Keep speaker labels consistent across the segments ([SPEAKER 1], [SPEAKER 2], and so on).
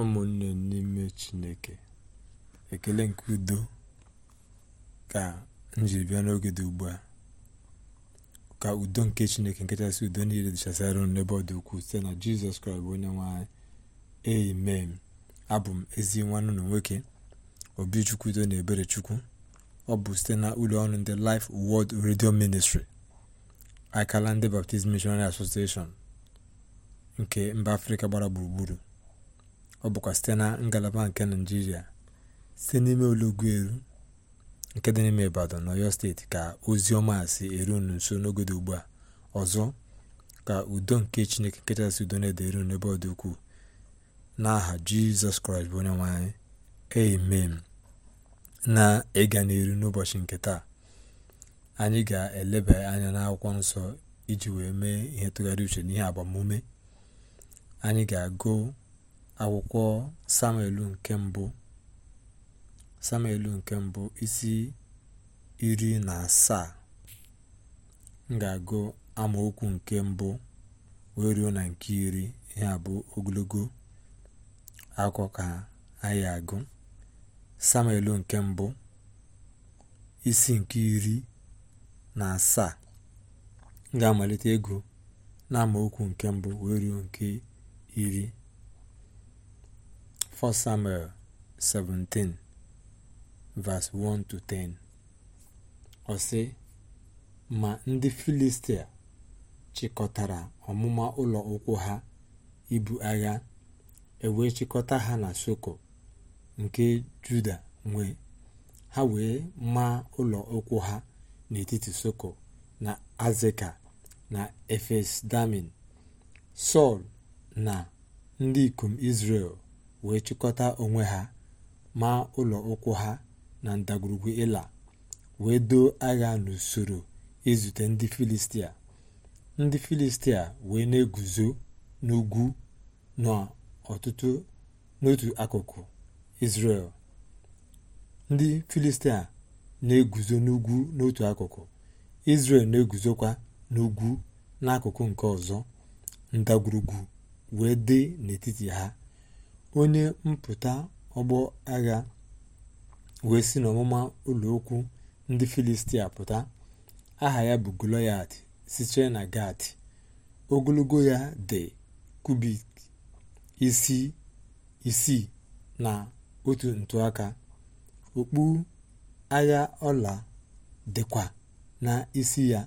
[SPEAKER 1] ụmụnne n'ime chineke ekele nke udo ka m jiri bịa n'oge dị ugbu a ka udo nke chineke nke kachasị udo niile dịchasịara unu n'ebe ọ dị ukwuu site na jizọs kraịst bụ onye nwanyị anyị amen abụ m ezi nwanne na nwoke obichukwu udo na ebere chukwu ọ bụ site na ụlọ ọrụ ndị Life Word Radio Ministry akala ndị Baptist Missionary Association nke mba afrịka gbara gburugburu ọ bụkwa site na ngalaba nke naijiria site n'ime olọgu eru nke dị n'ime ibadan na oyo steeti ka ozi ọma si eru unu nso ugbu a ọzọ ka udo nke chineke kachasị udo na-ede eru n'ebe ọ dị ukwuu n'aha jizọs kraịst bụ onye nwe anyị amen na ịga n'iru n'ụbọchị nke taa anyị ga-eleba anya n'akwụkwọ nsọ iji wee mee ihe tụgharị uche n'ihe agbamume anyị ga-agụ akwụkwọ samuel nke mbụ isi iri na asaa m ga-agụ amaokwu nke mbụ wee ruo na nke iri ihe bụ ogologo akụkọ ka anyị agụ samuelụ nke mbụ isi nke iri na asaa m ga-amalite ego na amaokwu nke mbụ wee ruo nke iri 1 Samuel 17 verse 1 10 ọ sị ma ndị Filistia chịkọtara ọmụma ụlọ ụkwụ ha ibu agha ewee chịkọta ha na Soko nke Juda nwe ha wee maa ụlọ ụkwụ ha n'etiti Soko na Azeka na Efes Damin Sọl na ndị ikom Izrel wee chịkọta onwe ha ma ụlọ ụkwụ ha na ndagwurugwu ịla wee doo agha n'usoro izute ndị filistia ndị filistia wee na-eguzo n'ugwu n'ọtụtụ n'otu akụkụ israel ndị filistia na-eguzo n'ugwu n'otu akụkụ israel na-eguzokwa n'ugwu n'akụkụ nke ọzọ ndagwurugwu wee dị n'etiti ha onye mpụta ọgbọ agha wee si n'ọmụma ụlọ okwu ndị filistia pụta aha ya bụ goloyat sitere na gat ogologo ya dị kubik isi isii na otu ntụaka okpu agha ọla dịkwa na isi ya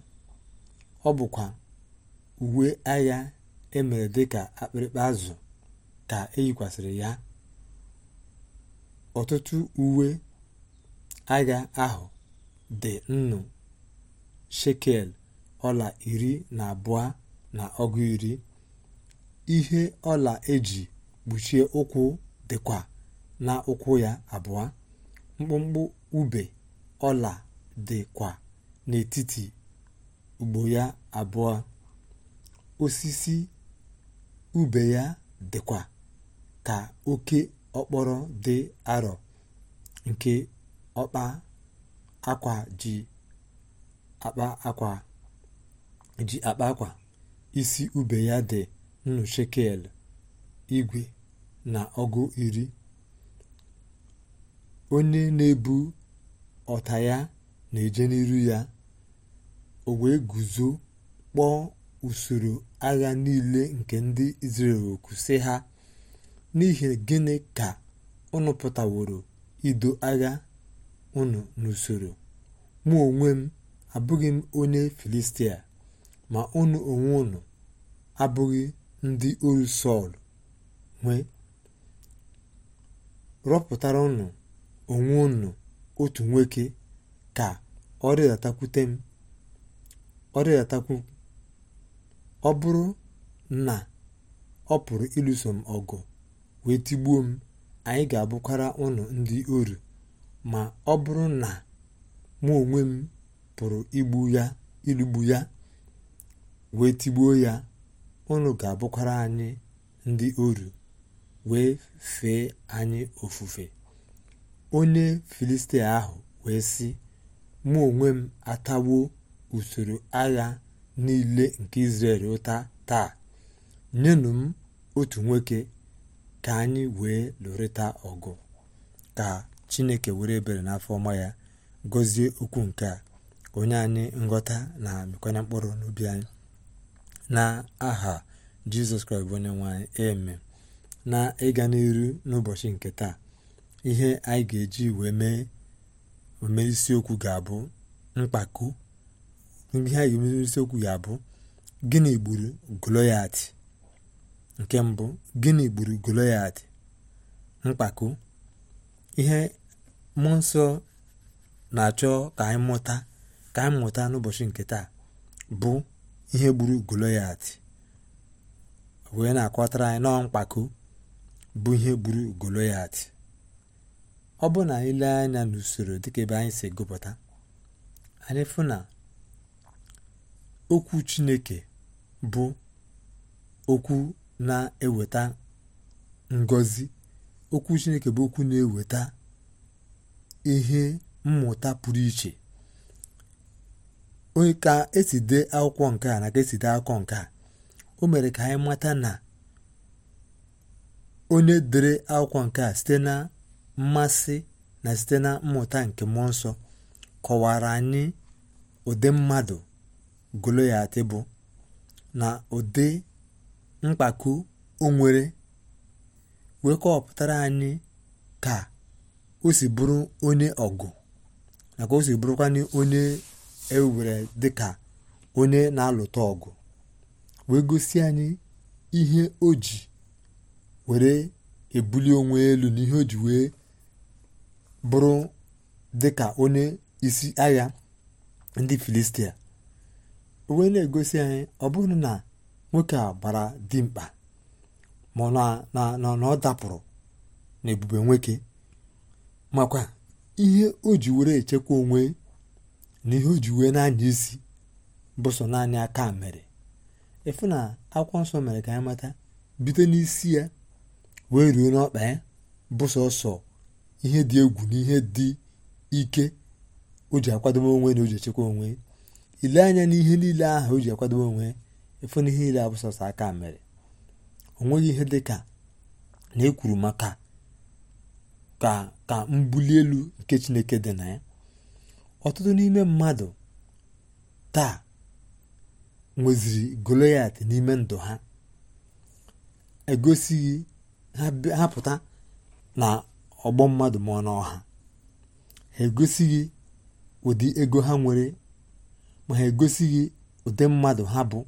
[SPEAKER 1] ọ bụkwa uwe agha emere dịka akpịrịkpa azụ ka e eyikwasịrị ya ọtụtụ uwe agha ahụ dị nnu shekel ọla iri na abụọ na ọgụ iri ihe ọla eji kpuchie ụkwụ dịkwa na ụkwụ ya abụọ mkpụmkpụ ube ọla dịkwa n'etiti ugbo ya abụọ osisi ube ya dịkwa ka oke okporo dị arọ nke ọkpa akwa ji akpa akwa ji akpa akwa isi ube ya dị nnu shekel igwe na ọgụ iri onye na-ebu ọta ya na-eje n'iru ya o wee guzo kpọọ usoro agha niile nke ndị Izrel oku si ha n'ihi gịnị ka unu pụtaworo ido agha unu n'usoro mụ onwe m abụghị m onye filistia ma unu onwe unu abụghị ndị oru sọl nwee rọpụtara unu onwe unu otu nwoke ka ọ rịdatakwute m ọ ọ bụrụ na ọ pụrụ ịlụso m ọgụ wee tigbuo m anyị ga-abụkwara ụnụ ndị oru ma ọ bụrụ na mụ onwe m pụrụ igbu ya irigbu ya wee tigbuo ya ụnụ ga-abụkwara anyị ndị oru wee fee anyị ofufe onye filistia ahụ wee sị mụ onwe m atawo usoro agha niile nke Izrel ụta taa nyenụ m otu nwoke ka anyị wee lụrịta ọgụ ka chineke were ebere n'afọ ọma ya gọzie okwu nke a onye anyị nghọta na mekwanye mkpụrụ n'obi anyị na aha jizọs kraịst onye nwe eme na ịga n'iru n'ụbọchị nke taa ihe anyị ga-eji wee mee ome isiokwu ga-abụ mkpako ihe anyị ga isiokwu ga-abụ gịnị gburu goloyat nke mbụ gịnị gburu goloyat mkpako ihe mmụọ nsọ na-achọ ka anyị mụta ka anyị mụta n'ụbọchị nke taa bụ ihe gburu goloyat wee na-akọtara anyị nọọ mkpako bụ ihe gburu goloyat ọ bụ na ile anya n'usoro dịka ebe anyị si gụpụta anyị fụ na okwu chineke bụ okwu na-eweta ngọzi okwu chineke bụ okwu na-eweta ihe mmụta pụrụ iche onye ka esi dee akwụkwọ nke a na ka esi dee akwụkwọ nke a o mere ka anyị mata na onye dere akwụkwọ nke a site na mmasị na site na mmụta nke mmụọ nsọ kọwara anyị ụdị mmadụ Goloyat bụ na ụdị mkpako onwere wee kọwapụtara anyị ka o si bụrụ onye ọgụ na ka o si bụrụkwanye onye ewere dịka onye na-alụta ọgụ wee gosi anyị ihe o ji were ebuli onwe elu na ihe o ji wee bụrụ dịka onye isi agha ndị filistia wee na-egosi anyị ọ bụrụ na nwoke a gbara dimkpa ọ na ọ dapụrụ na ebube nwoke makwa ihe o ji were echekwa onwe na ihe o ji wee na-anya isi bụ naanị aka mere ịfụ na akwụkwọ nsọ mere ka anyị mata bite n'isi ya wee ruo n'ọkpa ya bụ ihe dị egwu na ihe dị ike o ji akwadobe onwe na o ji echekwa onwe ile anya n'ihe niile ahụ o ji akwadobe onwe efu na ihe abụ sọsọ aka mere o nweghị ihe dị ka na ekwuru maka ka ka mbuli elu nke chineke dị na ya ọtụtụ n'ime mmadụ taa nweziri goliath n'ime ndụ ha egosighị ha pụta na ọgbọ mmadụ ma na ọha ha egosighị ụdị ego ha nwere ma ha egosighị ụdị mmadụ ha bụ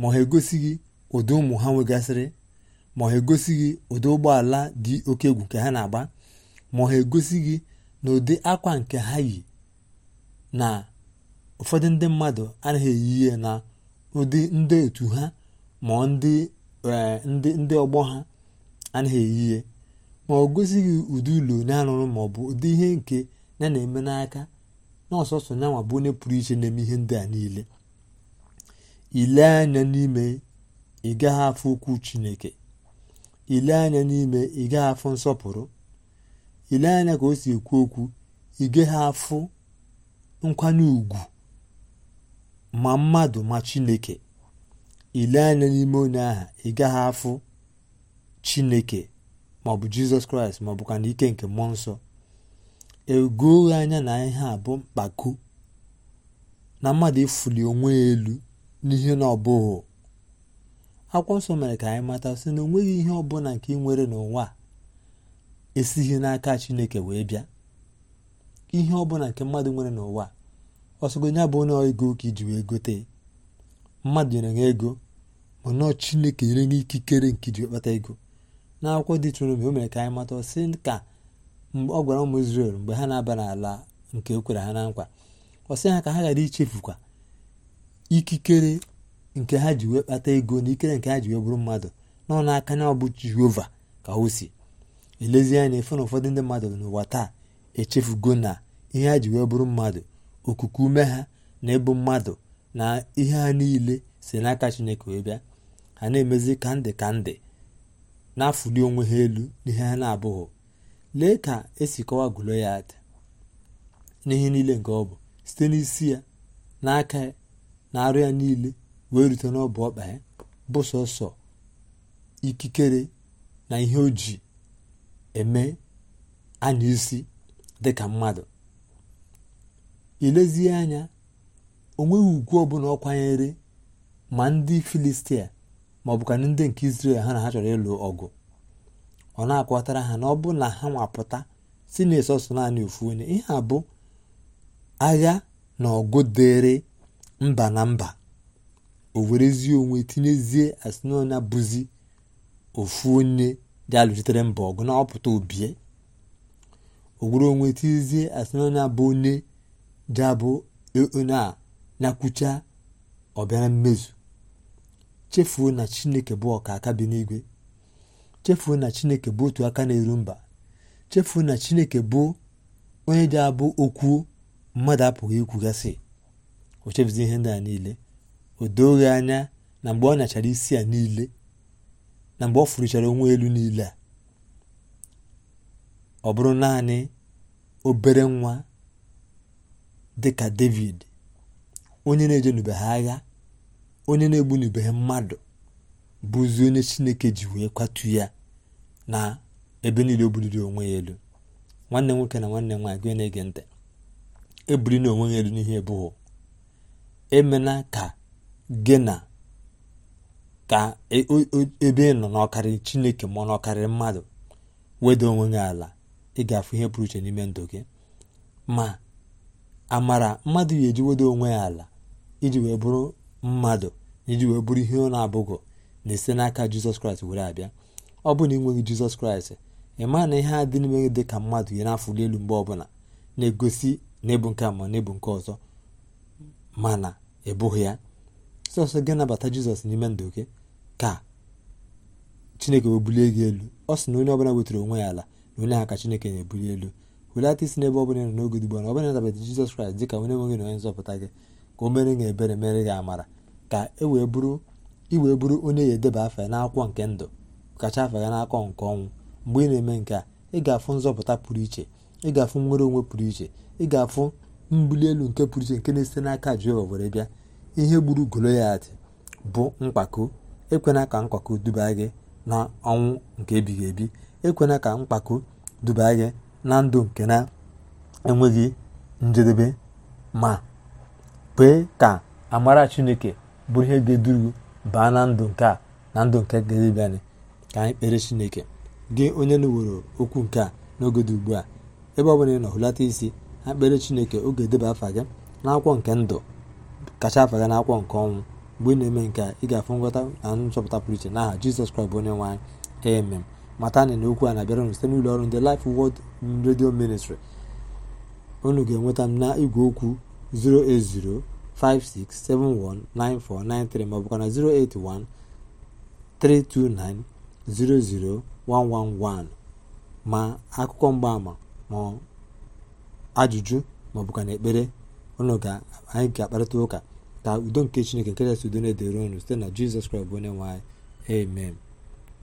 [SPEAKER 1] ma ha egosighị ụdị ụmụ ha nwegasịrị ma ha egosighị ụdị ụgbọala dị oke egwu nke ha na-agba ma ha egosighị na ụdị akwa nke ha yi na ụfọdụ ndị mmadụ anaghị eyi ihe na ụdị ndị otu ha ma e, ndị ndị ọgbọ ha anaghị eyi ihe ma ọ gosighị ụdị ụlọ onye arụrụ ma ọ bụ ụdị ihe nke ya na-eme n'aka na ọsọsọ nyanwa bụ onye pụrụ iche na-eme ihe ndị a niile ile anya n'ime ị gaghị afụ chineke ile anya n'ime ị afọ nsọpụrụ ile anya ka o si ekwu okwu ị afụ nkwanye ùgwù ma mmadụ ma chineke ile anya n'ime onye aha ịgaghị afụ chineke maọbụ jizọs kraịst maọbụkwa na ike nke mmụọ nsọ egoghị anya na ihe a bụ mkpako na mmadụ ịfụli onwe ya elu n'ihe na ọbụghị akwụkwọ nsọ mere ka anyị mata sị na onweghị ihe ọbụla nke ị nwere n'ụwa esighị n'aka chineke wee bịa ihe ọbụla nke mmadụ nwere n'ụwa ọsọgonya bụ onye ego ka iji wee gote mmadụ nyere gị ego nọọ chineke nyere gị ikikere nke iji kpata ego akwụkwọ dị chụrụ mgbe o mere ka anyị mata sị ka ọ gwara ụmụ Izrel mgbe ha na-aba n'ala nke o e kwere ha na nkwa ọ sị ha ka ha ghara ichefukwa ikikere nke ha ji wee kpata ego na ikere nke ha ji wee bụrụ mmadụ nọ n'aka na ọ bụ jehova ka o si elezie anya efe na ụfọdụ ndị mmadụ n'ụwa taa echefugo na ihe ha ji wee bụrụ mmadụ okuku ume ha na ịbụ mmadụ na ihe ha niile si n'aka chineke wee bịa ha na-emezi ka ndị ka ndị na-afụli onwe ha elu n'ihe ha na-abụghị lee ka esi kọwa gụlo ya n'ihe niile nke ọ bụ site n'isi ya n'aka ya na arụ ya niile wee rute n'ọbụ ọkpa ya bụ sọsọ ikikere na ihe o ji eme anya isi dịka mmadụ ilezie anya onweghị ugwu ọbụla ọ kwanyere ma ndị filistia ma ọ bụkana ndị nke israel ha na ha chọrọ ịlụ ọgụ ọ na-akọtara ha na ọ bụ na ha nwapụta si na-esosọ naanị ofu onye ihe a bụ agha na ọgụ dịrị mba na mba o werezie onwe tinyezie asịnaonya bụzi ofu onye dị alụzitere mba ọgụ na ọpụta obie o were onwe tinyezie asịnaonya bụ onye dị abụ onye e, a nakwucha ọbịara mmezu chefuo na chineke bụ ọka aka bi n'igwe chefuo na chineke bụ otu aka na-eru mba chefuo na chineke bụ onye dị abụ okwuo mmadụ apụghị ikwugasị o chebizi ihe ndị a niile o doghị anya na mgbe ọ nyachara isi a niile na mgbe ọ fụrụchara onwe elu niile a ọ bụrụ naanị obere nwa dịka david onye na-eje n'ube ha agha onye na-egbu n'ube ha mmadụ bụzi onye chineke ji wee kwatu ya na ebe niile o buliri onwe ya elu nwanne nwoke na nwanne nwaanyị gị na-ege ntị ebuli na onwe ya elu n'ihe ebughị emela ka gị na ka e, ebe ị nọ n'ọkarị chineke ma n'ọkarị mmadụ weda onwe gị ala ga-afụ ihe pụrụ iche n'ime ndụ gị ma amara mmadụ yi eji weda onwe ya ala iji wee bụrụ mmadụ iji wee bụrụ ihe ọ na-abụghị na-esi n'aka jizọs kraịst were abịa ọ bụ na ị nweghị jizọs kraịst ị maa na ihe a dị n'ime gị dị ka mmadụ ya na-afụli elu mgbe ọbụla na-egosi na ebu nke a ma na ebu nke ọzọ mana ị bụghị ya sọsọ gị nabata jizọs n'ime ndụ gị ka chineke wee bulie gị elu ọ sị na onye ọbụla wetara onwe ya ala na onye ha ka chineke na-ebuli elu welata isi n'ebe ọbụla nọ n'oge ugbu a na ọbụla nabata jizọs kraịst dị ka onye nwe gị na onye nzọpụta gị ka o mere gị ebere mere gị amara ka e wee bụrụ onye ya edeba afa ya na-akwụkwọ nke ndụ kacha afa ya n'akọ nke ọnwụ mgbe ị na-eme nke a ị ga-afụ nzọpụta pụrụ iche ị ga-afụ nnwere onwe pụrụ iche ị ga-afụ mbuli elu nke pụrụ iche nke na-esite n'aka Jehova were bịa ihe gburu goloyat bụ mkpako ekwena ka mkpako duba gị na ọnwụ nke ebighị ebi ekwena ka mkpako duba gị na ndụ nke na-enweghị njedebe ma kwee ka amara Chineke bụrụ ihe ga-eduru baa na ndụ nke a na ndụ nke ga ka anyị kpere Chineke gị onye na-ewere okwu nke a n'oge dị ugbu a ebe ọ bụla ị nọ hụlata isi akpere chineke oge edeba afa gị n'akwụkwọ nke ndụ kacha afa gị n'akwụkwọ nke ọnwụ mgbe ị na-eme nke a ị ga-afụ na nchọpụta pụrụ iche n'aha jizọs kraịst bụ onye nwaanyị anyị amen mata na okwu a na-abịara unu site n'ụlọ ọrụ ndị Life wod Radio Ministry unu ga-enweta m na igwe okwu 08056719493 ma ọ bụkwa na 08132900111 ma akụkọ mgbaama ma ajụjụ ka na ekpere ụlọ anyị ga-akparịta ụka ka udo nke chineke nke kasị udo na-edere ụnụ site na jizọs kraịst bụ onye nwe anyị amen